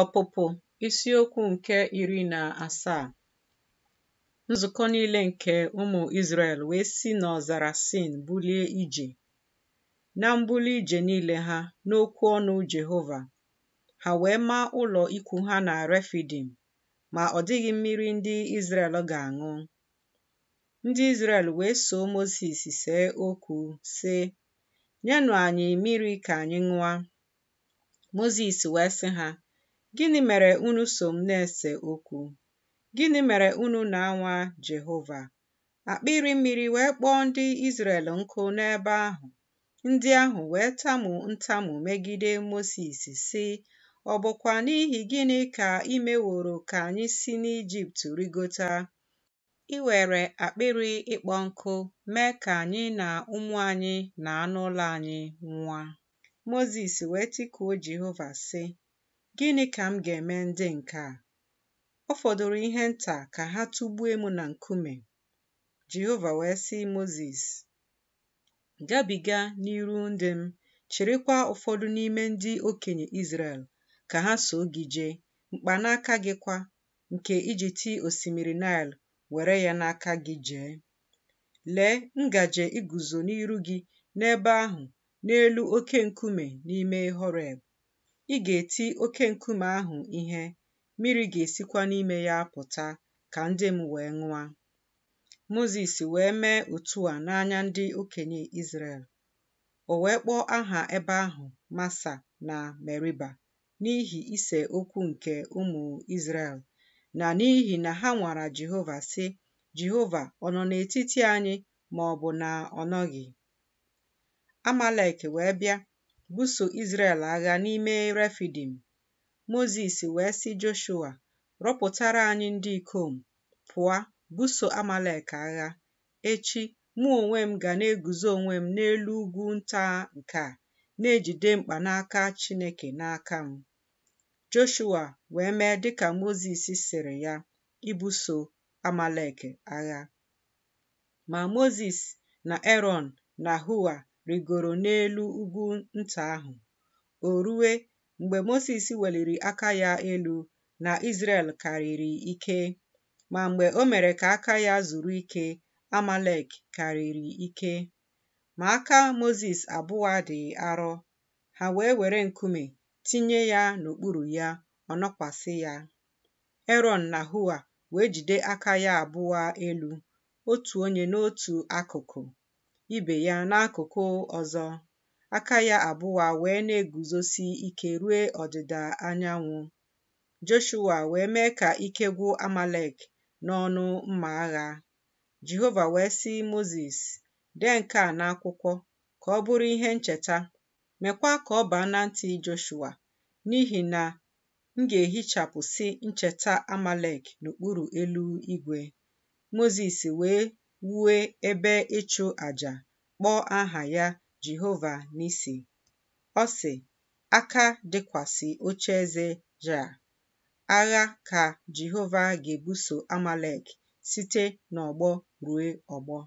Ọpụpụ isiokwu nke iri na asaa nzukọ niile nke ụmụ Izrel wee si n'ọzara Sin bulie ije na mbuli ije niile ha n'okwu ọnụ Jehova ha wee maa ụlọ ikwu ha na Refidim ma ọ dịghị mmiri ndị Izrel ga-aṅụ ndị Izrel wee soo Mosis see okwu sị nyenụ anyị mmiri ka anyị ṅụa Mozis wee sị ha Gịnị mere unu so m na-ese okwu? Gịnị mere unu na-anwa Jehova? Akpịrị mmiri wee kpọọ ndị Izrel nkụ n'ebe ahụ. Ndị ahụ wee tamu ntamu megide Mosis, sị, "Ọbụkwa n'ihi gịnị ka imeworo ka anyị si n'Ijipt rigota? I were akpịrị ịkpọ nkụ mee ka anyị na ụmụ anyị na anụ ụlọ anyị nwa. Mozis wee tikuo Jehova sị, Gịnị ka m ga-eme ndị nke a? Ọ fọdụrụ ihe nta ka ha tụgbuo m na nkume. Jehova wee sị Mozis, gabiga n'iru ndị m, chịrịkwa ụfọdụ n'ime ndị okenye Izrel ka ha so gị jee, mkpanaka gị kwa, nke iji tii osimiri Nile were ya n'aka gị jee. Lee ngaji iguzo n'iru gị n'ebe ahụ n'elu oke nkume n'ime Horeb. Ị ga-eti oke nkume ahụ ihe, mmiri ga-esikwa n'ime ya pụta ka ndị m wee ṅụa Mozis wee mee otu a n'anya ndị okenye Izrel. O wee kpọọ aha ebe ahụ Masa na Meriba n'ihi ise okwu nke ụmụ Izrel na n'ihi na ha nwara Jehova si “Jehova ọ nọ n'etiti anyị ma ọ bụ na ọ nọghị?” Amalek wee bịa buso Izrel agha n'ime Refidim, Mozis wee si Joshua, rọpụtara anyị ndị ikom, pụọ buso Amalek agha. Echi, mụ onwe m ga na-eguzo onwe m n'elu ugwu nta nke a, na-ejide mkpanaka Chineke n'aka m. Joshua wee mee dịka Mozis sịrị ya, ibuso Amalek agha. Ma Mozis na Eron na Hua rigoro n'elu ugwu nta ahụ. O ruwe mgbe moses weliri aka ya elu na Izrel karịrị ike, ma mgbe o mere ka aka ya zuru ike, Amalek karịrị ike. Ma aka moses abụọ dị arọ, ha wee were nkume tinye ya n'okpuru ya, ọ nọkwasị ya. Eron na Hua wee jide aka ya abụọ elu, otu onye n'otu akụkụ. ibe ya n'akụkụ ọzọ, aka ya abụwa wee na-eguzosi ike ruo ọdịda anyanwụ. Joshua wee mee ka ike gwụ Amalek n'ọnụ mma agha. Jehova wee sị Mozis, dee nke a n'akwụkwọ ka ọ bụrụ ihe ncheta, meekwa ka ọ baa na ntị Joshua, n'ihi na m ga-ehichapụsị ncheta Amalek n'okpuru elu igwe. Mozis wee wue ebe ịchụ àjà kpọọ aha ya Jehova Nisi. Ọ sị, aka dịkwasị oche eze ja. Agha ka Jehova ga-ebuso Amalek site n'ọgbọ ruo ọgbọ.